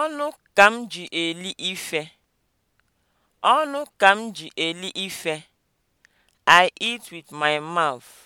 Ọnụ ka m ji eli ife. Ọnụ ka m ji eli ife. I eat with my mouth.